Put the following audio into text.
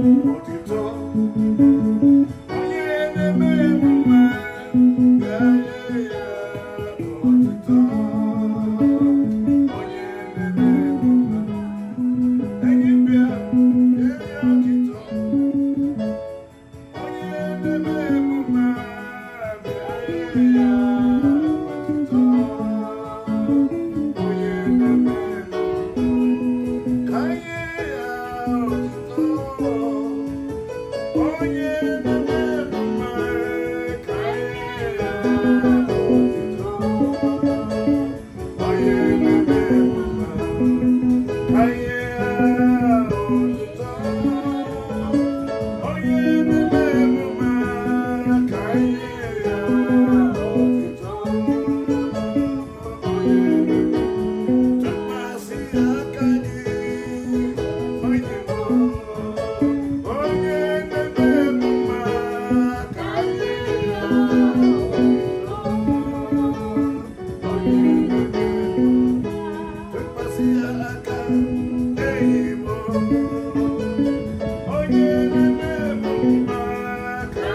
Oh, Oh, yeah.